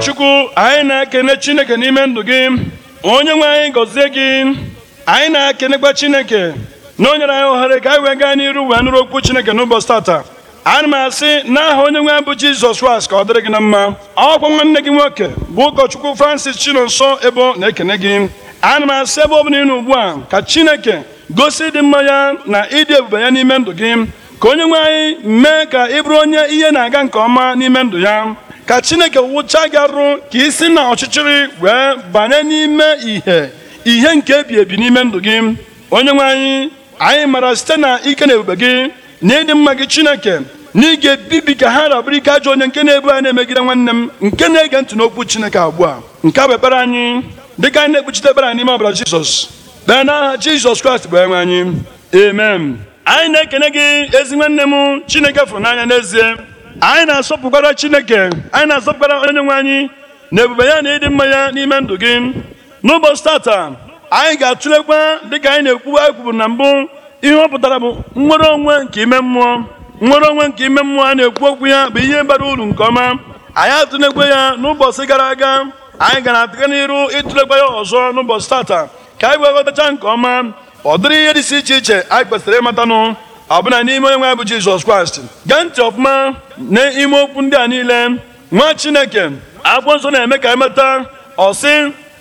Chukwu anyị na-ekene Chineke n'ime ndụ gị onye nwe anyị gọzie gị anyị na-ekenekwa Chineke na onyere anyị ohere ka anyị wee gaa n'iru wee nụrụ okwu Chineke n'ụbọchị tata ana m asị n'aha onye nwe bụ Jizọs Kraịst ka ọ dịrị gị na mma ọkwa nwanne gị nwoke bụ ụkọchukwu Francis Chinonso Ebo na-ekene gị ana m asị ebe ọ bụla ịnụ ugbu a ka Chineke gosi ịdị mma ya na ịdị ebube ya n'ime ndụ gị ka onye nwe anyị mee ka ị bụrụ onye ihe na-aga nke ọma n'ime ndụ ya ka chineke wụcha gị arụ ka i si na ọchịchịrị wee banye n'ime ìhè ihe nke ebi ebi n'ime ndụ gị onye nwe anyị anyị mara site na ike na ebube gị na ịdị mma gị chineke na ị ga-ebibi ka ha rabụrụ ike ajọ onye nke na-ebu anyị na-emegide nwanne m nke na-ege ntị n'okwu chineke ugbu a nke a bụ ekpere anyị dịka anyị na-ekpuchite ekpere anyị n'ime ọbara jizọs kpee n'aha jizọs kraịst bụ enwe anyị amen anyị na-ekene gị ezi nwanne m chineke fụrụ n'anya n'ezie anyị na-asọpụkwara chineke anyị na-asọpụkwara onye nwe anyị na ebube ya na ịdị mma ya n'ime ndụ gị n'ụbọchị tata anyị ga-atụlekwa dịka anyị na anyị kwuburu na mbụ ihe ọ pụtara bụ nnwere onwe nke ime mmụọ nwere onwe nke ime mmụọ a na-ekwu okwu ya bụ ihe bara uru nke ọma anyị atụlekwa ya n'ụbọchị gara aga anyị gara atụga n'iru ịtụlekwa ya ọzọ n'ụbọchị tata ka anyị wee ghọtacha nke ọma ọ dịrị ihe dị si iche iche anyị kwesịrị ịmatanụ ọbụna n'ime onye nwe bụ jizọs kraịst gee ntị ọfụma n'ime okwu ndị a niile nwa chineke akwụkwọ nsọ na-eme ka emeta ọsị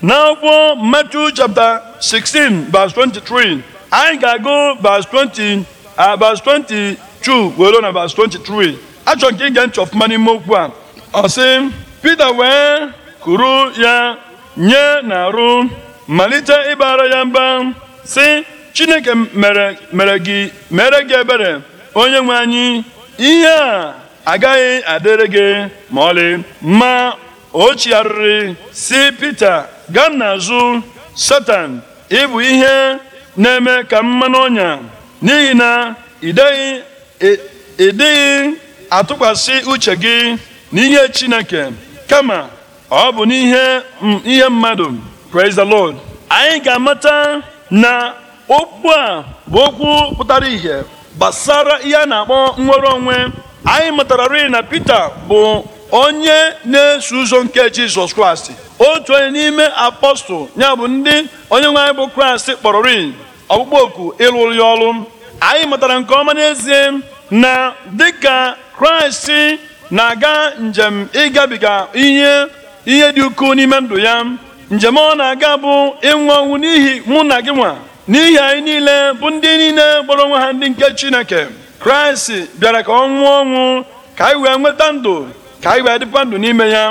n'akwụkwọ Matthew chapter 16 verse 23 anyị ga-agụ verse 20 22 were na verse 23 achọrọ nke ige ntị ọfụma n'ime okwu a ọsị Pita wee kuru ya nye na arụ malite ịbara ya mba sị chineke mere gị ebere onye nwe anyị ihe a agaghị adịrị gị ma ọlị ma o chigharịrị si pete gaa n'azụ Satan ịbụ ihe na-eme ka mmanụ ọnya n'ihi na ịdịghị atụkwasị uche gị n'ihe Chineke kama ọ bụ n'ihe ihe mmadụ praise the Lord anyị ga-amata na okwu a bụ okwu pụtara ìhè gbasara ihe a na-akpọ nnwere onwe anyị matara mụtararị na Pita bụ onye na-eso ụzọ nke Jizọs Kraịst otu onye n'ime apọstụl ya bụ ndị onye nwe anyị bụ Kraịst kpọrọrị ọkpụkpọ oku ịlụrụ ya ọrụ anyị matara nke ọma n'ezie na dịka Kraịst na-aga njem ịgabiga ihe ihe dị ukwuu n'ime ndụ ya njem ọ na-aga bụ ịnwụ ọnwụ n'ihi mụ na gị nwa n'ihi anyị niile bụ ndị niile kpọrọ onwe ha ndị nke chineke kraịst bịara ka ọ nwụọ ọnwụ ka anyị wee nweta ndụ ka anyị wee dịkwa ndụ n'ime ya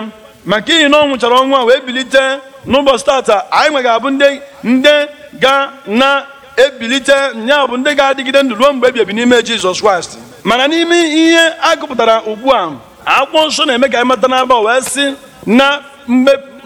maka ihi na ọ nwụchara ọnwụ a wee bilite n'ụbọchị tata anyị nwe ga-abụ ndị ndị ga na-ebilite nya bụ ndị ga-adịgide ndụ ruo mgbe ebiebi n'ime jizọs kraịst mana n'ime ihe a gụpụtara ugbu a akwụkwọ nsọ na-eme ka anyị mata n'aba wee sị na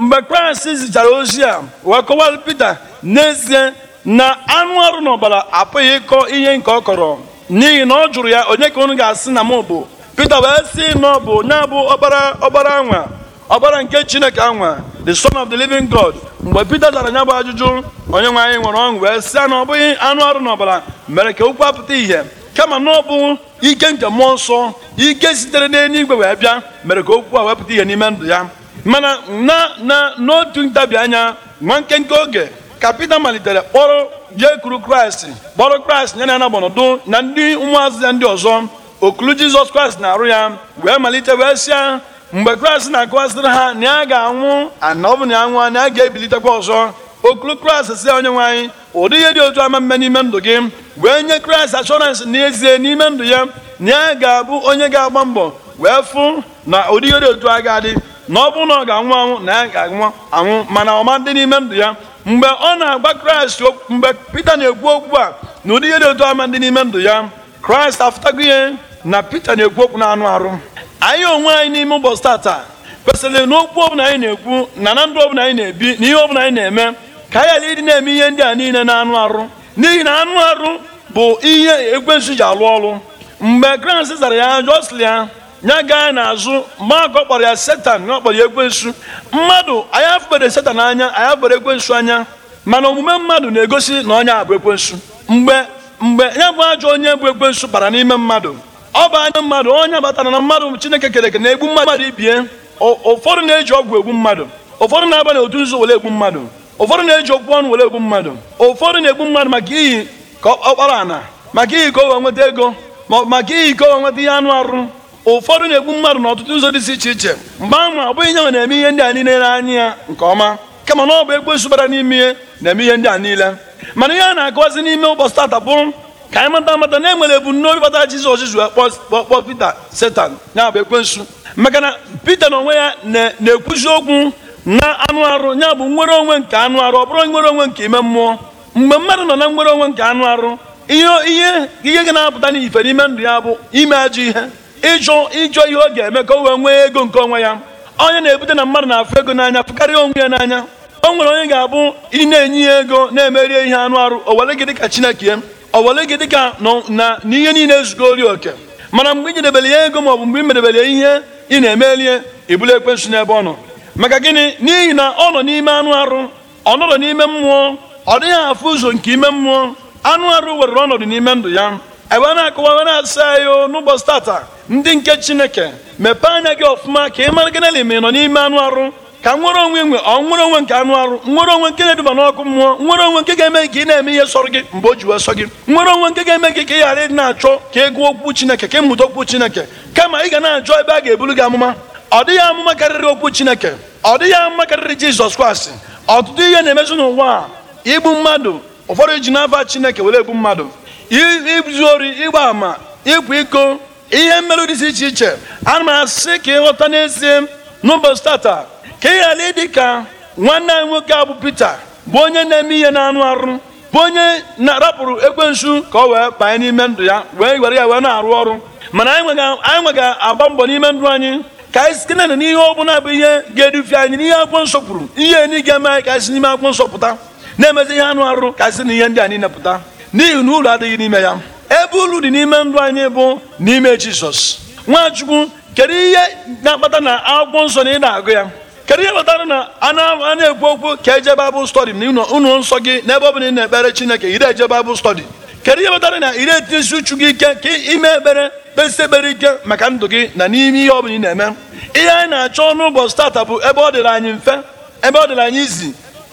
mgbe kraịst zichara ozi a wee kọwara pete n'ezie na anụ ọrụ na ọbara apụghị ịkọ ihe nke ọ kọrọ n'ihi na ọ jụrụ ya onye ka unu ga-asị na m bụ Pita wee si na ọ bụ onye bụ ọbara ọbara anwa ọbara nke Chineke anwa the son of the living God mgbe pete dara nya bụ ajụjụ onye nwe anyị nwere ọṅụ wee sị na ọ bụghị anụ ọrụ na ọbara mere ka okwu apụta ihe kama na ọ bụ ike nke mmụọ nsọ ike sitere n'eluigwe wee bịa mere ka okwu a wepụta ihe n'ime ndụ ya mana na na n'otu ntabi anya nwa nkenke oge ka Pita malitere kpọrọ jee kuru Kraịst kpọrọ Kraịst nye na n'ọnọdụ na ndị ụmụazụ ya ndị ọzọ okulu Jizọs Kraịst na-arụ ya wee malite wee sịa mgbe Kraịst na-akọwasịrị ha na ya ga-anwụ ana na ya na ya ga-ebilitekwa ọzọ okulu Kraịst si onye nwanyị ụdị ihe dị otu ama mme n'ime ndụ gị wee nye Kraịst ashọransị n'ezie n'ime ndụ ya na ya ga-abụ onye ga-agba mbọ wee fụ na ụdị ihe dị otu a ga-adị na ọ bụrụ na ọ ga-anwụ anwụ na ya ga-anwụ anwụ mana ọma dị n'ime ndụ ya mgbe ọ na-agba kraịst mgbe pita na-ekwu okwu a na ụdị ihe dị otu ama dị n'ime ndụ ya kraịst afụtago ihe na pita na-ekwu okwu na anụ arụ anyị onwe anyị n'ime ụbọchị tata kwesịrị na okwu ọbụla anyị na-ekwu na na ndụ ọbụla anyị na-ebi na ihe ọbụla anyị na-eme ka anyị ghara ịdị na-eme ihe ndị a niile na anụ arụ n'ihi na anụ arụ bụ ihe ekwensu ji alụ ọrụ mgbe kraịst zara ya ajụ ya ya gaa n'azụ mmakọ kpọrọ ya setan ya kpọrọ ya ekwensu mmadụ anyị afụbere setan anya anyị afụbere ekwensu anya mana omume mmadụ na-egosi na onye bụ ekwensu mgbe mgbe ya bụ ajọ onye bụ ekwensu bara n'ime mmadụ ọ bụ anya mmadụ onye batara na mmadụ chineke kere eke na-egbu mmadụ ibie ụfọdụ na-eji ọgwụ egbu mmadụ ụfọdụ na-aba n'otu nzu were egbu mmadụ ụfọdụ na-eji okwu ọnụ were egbu mmadụ ụfọdụ na-egbu mmadụ maka iyi ka kpara ana maka iyi ka o nweta ego maka iyi ka o nweta ihe anụ arụ ụfọdụ na-egbu mmadụ ọtụtụ ụzọ dị iche iche mgbe ahụ ọ bụghị nyanwa na-eme ihe ndị a niile n'anya ya nke ọma kama na ọ bụ ekwensu bara n'ime ihe na-eme ihe ndị a niile mana ihe a na akụwazi n'ime ụbọchị tata bụ ka anyị mata mata na enwere ebumnobi kpata Jizọs Jizọs kpọọ Pita Setan ya bụ ekwensu maka na Pita na onwe ya na-ekwuzi okwu na anụ arụ ya bụ nwere onwe nke anụ arụ ọ bụrụ nwere onwe nke ime mmụọ mgbe mmadụ nọ na nwere onwe nke anụ arụ ihe ihe ihe ga na-apụta n'ife n'ime ndụ ya bụ ime ajọ ihe ịjụ ịjụ ihe ọ ga-eme ka o wee nwee ego nke onwe ya onye na-ebute na mmadụ na-afụ ego n'anya fụkarịa onwe ya n'anya o nwere onye ga-abụ ị na-enye ya ego na-emerie ihe anụ arụ owere gị dịka chineke owere gị dịka na n'ihe niile ori oke mana mgbe ị nyedebere ya ego maọbụ mgbe ị merebere ya ihe ị na-emerie ibulu ekwensu n'ebe ọ nọ maka gịnị n'ihi na ọ nọ n'ime anụ arụ ọ nọrọ n'ime mmụọ ọ dịghị afụ ụzọ nke ime mmụọ anụ arụ were ọnọdụ n'ime ndụ ya ebe a na-akụwa na-asa ya n'ụbọchị tata ndị nke chineke mepee anya gị ọfụma ka ị mara gịnị ma ị nọ n'ime anụ arụ ka nwere onwe nwe ọ nwere onwe nke anụ arụ nwere onwe nke na-eduba n'ọkụ mmụọ nwere onwe nke ga-eme ka ị na-eme ihe sọrọ gị mgbe o ji wee sọ gị nwere onwe nke ga-eme gị ka ị ghara na-achọ ka ị gụọ okwu chineke ka ị mụta okwu chineke kama ị ga na-achọ ebe a ga eburu gị amụma ọ dịghị amụma karịrị okwu chineke ọ dịghị amụma karịrị jizọs kraịst ọtụtụ ihe na-emezi n'ụwa a igbu mmadụ ụfọdụ ji n'afa chineke were egbu mmadụ izu ori ịgba ama ịkwa iko ihe mmerụ dị iche iche ana m asị ka ịghọta n'ezie n'ụbọchị tata ka ị ghara ịdị ka nwanne anyị nwoke a bụ bụ onye na-eme ihe na-anụ arụ bụ onye na-arapụrụ ekwensu ka ọ wee banye n'ime ndụ ya wee were ya wee na-arụ ọrụ mana anyị nwe ga-agba mbọ n'ime ndụ anyị ka anyị site na n'ihe ọ bụla bụ ihe ga-edufe anyị n'ihe akwụkwọ nsọ kwuru ihe enyi ga-eme anyị ka anyị si n'ime akwụkwọ nsọ pụta na-emezi ihe anụ arụ ka anyị si na ihe ndị a niile pụta n'ihi na ụlọ adịghị n'ime ya ebe uru dị n'ime ndụ anyị bụ n'ime jizọs nwachukwu kedu ihe na-akpata na akwụkwọ nsọ na ị na-agụ ya kedu ihe kpatara na a na-ekwu okwu ka eje baịbụl stọdi na ụlọ nsọ gị n'ebe ọ bụla ị na-ekpere chineke ire eje baịbụl stọdi kedu ihe kpatara na ire etinyesi uchu gị ike ka ime ekpere kpesi ekpere ike maka ndụ gị na n'ime ihe ọ bụla ị na-eme ihe anyị na-achọ n'ụbọchị tata bụ ebe ọ dịrị anyị mfe ebe ọ dịrị anyị izi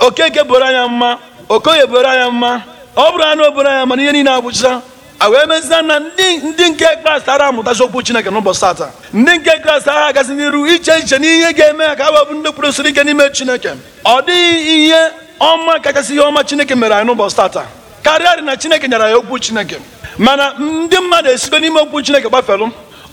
okeke bụrụ anya mma okoye bụrụ anya mma ọ bụrụ anụ obodo anya mana ihe niile agwụcha a wee mezia na ndị nke kraịst ara amụtazi okwu chineke n'ụbọchị tata ndị nke kraịst ara agazi n'iru iche iche n'ihe ga-eme ha ka a webụ ndị kwurụsiri ike n'ime chineke ọ dịghị ihe ọma kachasị ihe ọma chineke mere anyị n'ụbọchị tata karịa dị na chineke nyara ya okwu chineke mana ndị mmadụ esigo n'ime okwu chineke gbafelụ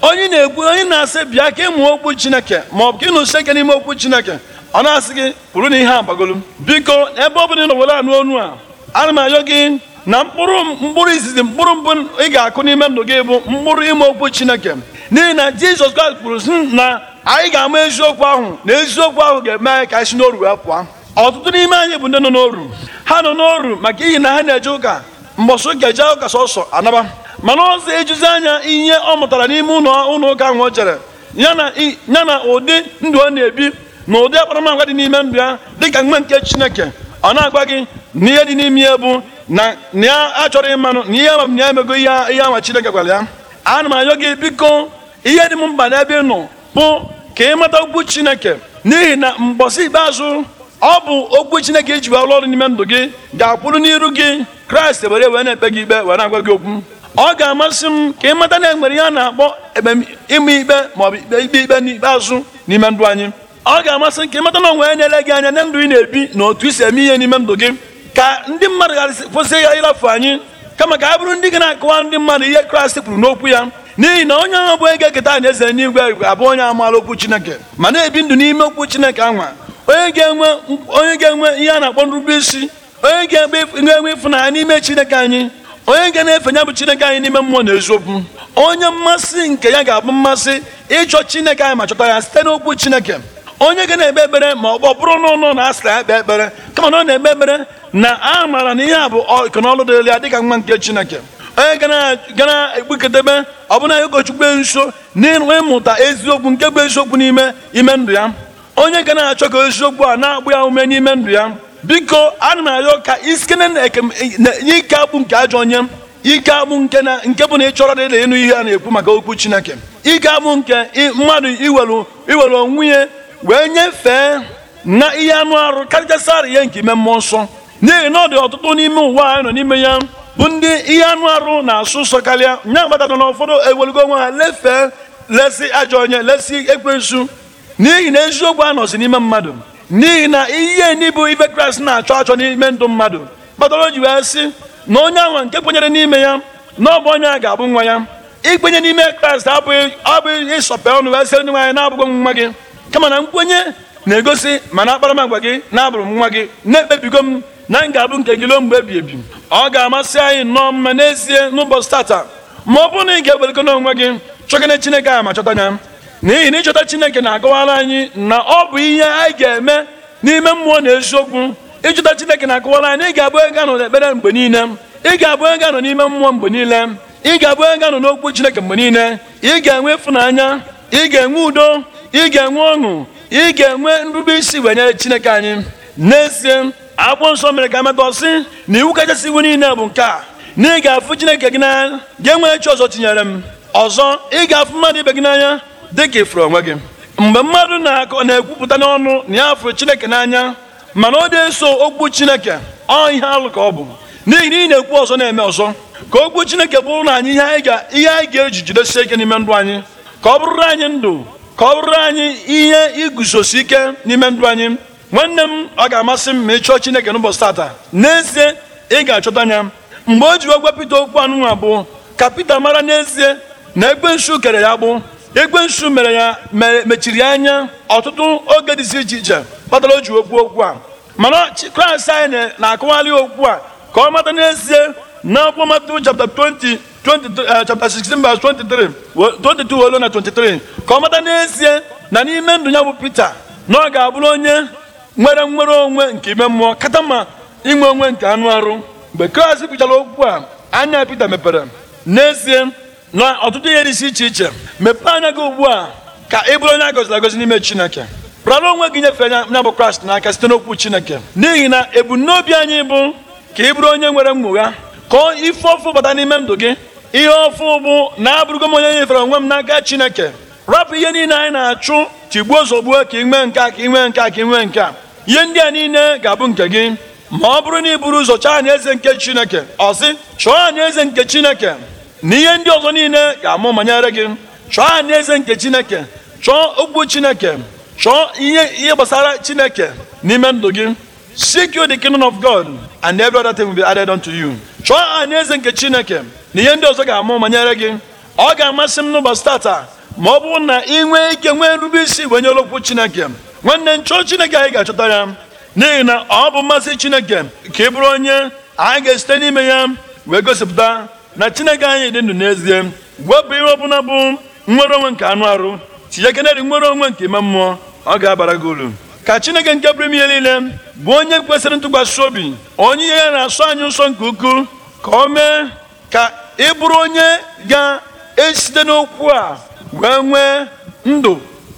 onye na-ekwu onye na-asị bịa ka ịmụ okwu chineke ma ọ bụ ka ịnụsie ike n'ime okwu chineke ọ na-asị gị kwuru na ihe agbagolu biko ebe ọ bụla ị nọ were anụ onu a ana m arịọ gị na mkpụrụ mkpụrụ izizi mkpụrụ mbụ ị ga-akụ n'ime ndụ gị bụ mkpụrụ ime okwu chineke n'ihi na jizọs kraịst kwuru sị na anyị ga-ama eziokwu ahụ na eziokwu ahụ ga-eme anyị ka anyị n'oru wee pụọ ọtụtụ n'ime anyị bụ ndị nọ n'oru ha nọ n'oru maka ihi na ha na-eje ụka mbọsị ụka eje ụka sọsọ anaba mana ọzọ ejuzi anya ihe ọ mụtara n'ime ụlọ ụka ahụ o jere ya na ụdị ndụ ọ na-ebi na ụdị akparamagwa dị n'ime ndụ ya dịka mgbe nke chineke ọ na-agwa gị n'ihe dị n'ime ya bụ na ya achọrọ ịmanụ na ihe ya emego ihe ihe anwa Chineke gwara ya ana m ayọ gị biko ihe dị m mkpa n'ebe ị nọ bụ ka ị mata okwu Chineke n'ihi na mbọsi ikpeazụ ọ bụ okwu Chineke iji wee ọrụ n'ime ndụ gị ga-akwụrụ n'iru gị Kraịst were wee na-ekpe gị ikpe were agwa gị okwu ọ ga-amasị m ka ị mata na enwere ihe a na-akpọ ịma ikpe maọbụ ikpe ikpe n'ikpeazụ n'ime ndụ anyị ọ ga-amasị m ka ị mata na onwe ya na-ele gị anya na ndụ ị na-ebi na otu i si eme ihe n'ime ndụ gị ka ndị mmadụ gasị kwụsị ya ịrafu anyị kama ka a bụrụ ndị ga na-akọwa ndị mmadụ ihe kraịst kwuru n'okwu ya n'ihi na onye ahụ bụ ga eketa eze n'igwe abụ onye amaala okwu chineke ma na-ebi ndụ n'ime okwu chineke anwa onye ga-enwe ihe a na-akpọ nrube isi onye ga-enwe ịfụnanya n'ime chineke anyị onye ga na-efe ya bụ chineke anyị n'ime mmụọ na eziokwu onye mmasị nke ya ga-abụ mmasị ịchọ chineke anyị ma chọta ya site n'okwu chineke onye ga na-ekpe ekpere ma ọ bụrụ na na asị ya ekpere kama na ọ na-ekpe ekpere na a maara na ihe a bụ ọkọnọlụ dịrị ya dịka nwa nke chineke onye ọ ekpukọdebe ọbụna ya ụkọchukwu nso ịmụta eziokwu nke bụ eziokwu n'ime ime ndụ ya onye ga na-achọ ka eziokwu a na-agbụ ya ume n'ime ndụ ya biko ana m arịọ ka isikene na ike akpụ nke ajọ onye ike agbụ nke nke bụ na ị chọrọ dịrị ịnụ ihe a na-ekwu maka okwu chineke ike agbụ nke mmadụ iwelu onwe ya wee nyefee na ihe anụ arụ karịchasị arị ya nke ime mmụọ nsọ n'ihi na ọ dị ọtụtụ n'ime ụwa anyị nọ n'ime ya bụ ndị ihe anụ arụ na-asụ nsọ karịa nya gbadata na ụfọdụ ewelugo onwe ha lefee lesi ajọ onye lesi ekwensu n'ihi na eziokwu anọzi n'ime mmadụ n'ihi na ihe n'ibu ife kraịst na-achọ achọ n'ime ndụ mmadụ kpatara o ji wee sị na onye anwa nke kwenyere n'ime ya na ọ bụ onye a ga-abụ nwa ya ikwenye n'ime kraịst abụghị ịsọpe ọnụ wee sịrị ndị nwaanyị na-abụghị nwa gị kama na nkwenye na-egosi mana akparamagwa gị na-abụrụ m nwa gị na-ekpebigo m na m ga-abụ nke gị ruo mgbe ebi ebi ọ ga-amasị anyị nnọọ mma n'ezie n'ụbọchị tata ma ọ bụrụ na ị ga-ewelego n'onwe gị chọgana chineke ahụ ma chọta ya n'ihi na ịchọta chineke na-akọwara anyị na ọ bụ ihe anyị ga-eme n'ime mmụọ na eziokwu ịchọta chineke na-akọwara anyị ị ga-abụ ego nọ n'ekpere mgbe niile ị ga-abụ ego anọ n'ime mmụọ mgbe niile ị ga-abụ ego anọ n'okwu chineke mgbe niile ị ga-enwe ịfụnanya ị ga-enwe udo ị ga-enwe ọṅụ ị ga-enwe nrube isi wee nyere chineke anyị n'ezie akwụkwọ nsọ mere ka amatọ sị na iwu kachasị iwu niile bụ nke a na ị ga-afụ chineke gị n'anya gị enweghị chi ọzọ tinyere m ọzọ ị ga-afụ mmadụ ibe gị n'anya dị ka ifuru onwe gị mgbe mmadụ na-akọ na-ekwupụta n'ọnụ na ya fụrụ chineke n'anya mana ọ dị eso okwu chineke ọ ihe alụ ka ọ bụ n'ihi na ị na-ekwu ọzọ na-eme ọzọ ka okwu chineke bụrụ na anyị ihe anyị ga-eji jidesie ike n'ime ndụ anyị ka ọ bụrụrụ anyị ndụ ka ọ bụrụ anyị ihe iguzosi ike n'ime ndụ anyị nwanne m ọ ga-amasị m ma ị chọọ Chineke n'ụbọchị tata n'ezie ị ga-achọta anya mgbe o ji ogwe Pita okwu anụnwa bụ ka Pita mara n'ezie na egbe nsu kere ya egbe nsu mere ya mechiri anya ọtụtụ oge dịzi iche iche kpatara o ji okwu okwu a mana Kraịst anyị na-akụwalị okwu a ka ọ mata n'ezie na akwụkwọ Matiu chapta 20 23 uh, chapter 16 verse 23 22 olu na 23 ka ọ mata n'ezie na n'ime ndụ ya bụ Pita na ọ ga-abụrụ onye nwere nwere onwe nke ime mmụọ kata ma inwe onwe nke anụ arụ mgbe Kraịst kwuchara okwu a anya Pita mepere n'ezie na ọtụtụ ihe dị iche iche mepee anya gị ugbu a ka ị bụrụ onye a gọziri agọzi n'ime Chineke rara onwe gị nyefe anya bụ Kraịst n'aka site n'okwu Chineke n'ihi na ebumnobi anyị bụ ka ị bụrụ onye nwere mmụgha kọọ ife ọfụ bata n'ime ndụ gị ihe ọfụ bụ na abụrụgo m onye nyefere onwe m n'aka chineke rapụ ihe niile anyị na-achụ tigbuo zọgbuo ka nwee nke a ka nwee nke a ka inwe nke a ihe ndị a niile ga-abụ nke gị ma ọ bụrụ na ị bụrụ ụzọ chọọ anya eze nke chineke ọ sị chọọ anyị eze nke chineke na ihe ndị ọzọ niile ga-amụ manyere gị chọọ anyị eze nke chineke chọọ okwu chineke chọọ ihe ihe gbasara chineke n'ime ndụ gị seek you the kingdom of God and every other thing will be added unto you chọọ anyị eze nke chineke na ihe ndị ọzọ ga-amụ ma nyere gị ọ ga-amasị m n'ụbọchị tata ma ọ bụrụ na ị nwee ike nwee nrube isi wee nye okwu chineke nwanne nchọọ chineke anyị ga-achọta ya n'ihi na ọ bụ mmasị chineke ka ị bụrụ onye anyị ga-esite n'ime ya wee gosipụta na chineke anyị dị ndụ n'ezie wepụ ihe ọbụla bụ nwere onwe nke anụ arụ tinye kenedị nwere onwe nke ime mmụọ ọ ga-abara gị uru ka chineke nke bụrụ ihe niile bụ onye kwesịrị ntụkwasị obi onye ihe ya na asụ anyị nsọ nke ukwuu ka o mee ka ị bụrụ onye ga-esite n'okwu a wee nwee ndụ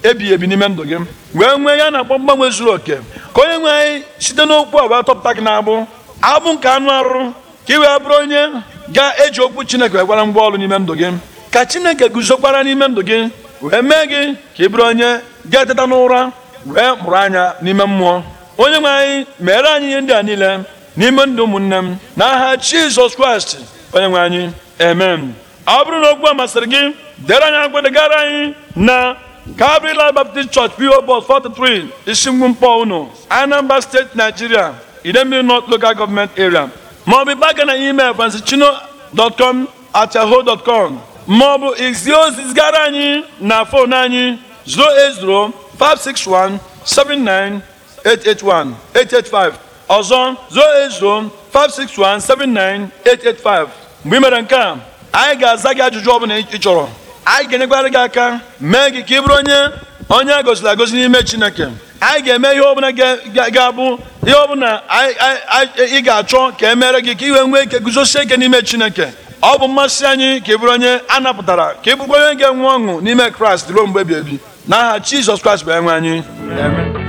ebighị ebi n'ime ndụ gị wee nwee ya na-akpọ mgbanwe zuru oke ka onye nwe anyị site n'okwu a wee tọpụta gị n'abụ abụ nke anụ arụ ka ị wee bụrụ onye ga-eji okwu chineke wee gwara ngwa ọrụ n'ime ndụ gị ka chineke guzokwara n'ime ndụ gị wee mee gị ka ị bụrụ onye ga-eteta n'ụra wee mụrụ anya n'ime mmụọ onye nwe anyị meere anyị ihe ndị a niile n'ime ndụ ụmụnne m n'aha Jizọs Kraịst onye nwe anyị Amen. ọ bụrụ na okwu a masịrị gị dere anyị agwadegara anyị na Calvary Life Baptist Church PO Box 43 Ishingbu Mkpọ unu Anambra State Nigeria Idembe North Local Government Area Ma ọ bụ maọbụ baga na email francischino.com at yahoo.com ọ bụ ozi zigara anyị na fon anyị 08056179881 885 ọzọ 08056179885 mgbe i mere nke a anyị ga-aza gị ajụjụ ọ bụla ị chọrọ anyị ga-enyekwara gị aka mee gị ka ị bụrụ onye onye a goziri agozi n'ime chineke anyị ga-eme ihe ọbụla ga-abụ ihe ọbụla ị ga-achọ ka e gị ka iwe nwee ike guzosie ike n'ime chineke ọ bụ mmasị anyị ka ị bụrụ onye a napụtara ka ị bụrụkwa onye ga-enwe ọṅụ n'ime kraịst ruo mgbe ebi ebi n'aha jizọs kraịst bụ enwe anyị